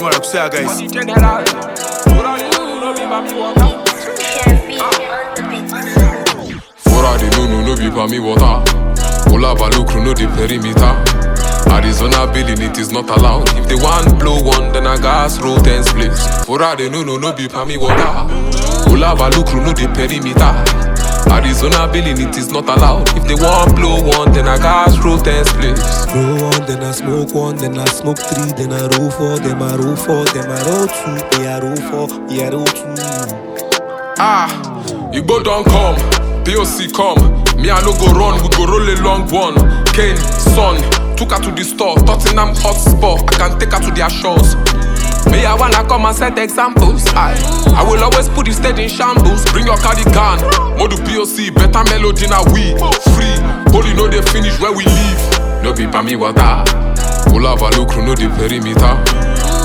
정말 역세아가 있어 보라리 누누누 비밤이 워다 올라바 루크루누 리 Arizona billing it is not allowed If they want blow one then I gas roll ten splits Forade no no no be pa me no di perimeter Arizona billing, it is not allowed. If they want blow one, then I gas roll ten spliffs. Roll one, then I smoke one, then I smoke three, then I roll four, then I roll four, then I roll two, then I roll four, then I roll two. Ah, Igbo don't come, POC come. Me I no go run, we go roll a long one. Kane, son, took her to the store, Tottenham hot spot. I can take her to their shores. Me, I wanna come and set examples. I, I will always put the state in shambles. Bring your cardigan, Modu POC, better melody now we free. Holy no they finish where we leave No be me water. Pull up a look, no the perimeter.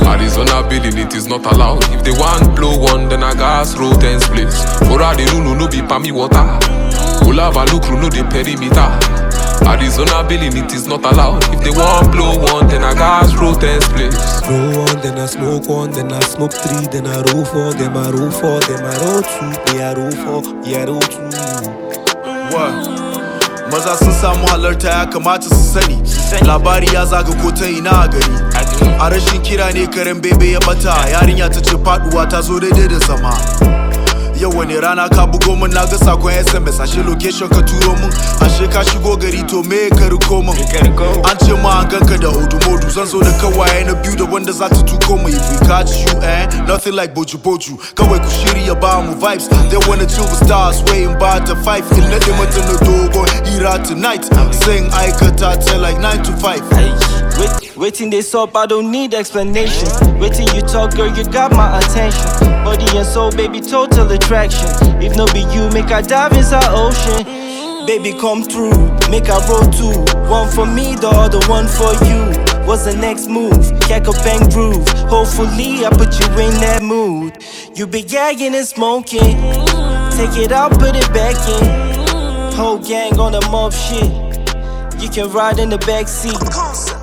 Arizona billing, it is not allowed. If they want blow one, then I gas roll ten splits. Ora the no be me water. Pull up a look, no the perimeter. Arizona billing, it is not allowed. If they want blow one, then I gas roll ten splits. Roll one, then I smoke one, then I smoke three, then I roll four, then I roll four, then I roll two, me I roll four, me I roll two. What? maza sun samu halarta ya kamata su sani labari ya zaga ko ta ina a gari a rashin kira ne karen bebe ya bata yarinya ta ce faduwa ta zo daidai da sama Yau wani rana ka bugo min na ga sakon SMS ashe location ka turo min ashe ka shigo gari to me ka riko min an ce ma an ganka da hudu modu zan zo da kawaye na biyu da wanda za ta tuko mu if we catch you eh nothing like boju boju kawai ku shirya ba mu vibes they wanna chill the stars waiting by the five in na mata na dogon hira tonight sing aikata ta like 9 to 5 Waiting dey sup, I don't need explanation. Waiting you talk, girl, you got my attention. Body and soul, baby, total attraction. If no be you, make I dive inside ocean. Baby, come through, make a roll too One for me, the other one for you. What's the next move? Cack a bang groove. Hopefully, I put you in that mood. You be gagging and smoking. Take it out, put it back in. Whole gang on the mob shit. You can ride in the back seat.